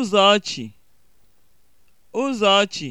Ụzọchi (ụzọchi)